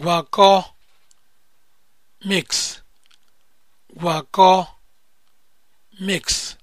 gwakọ mix gwakọ mix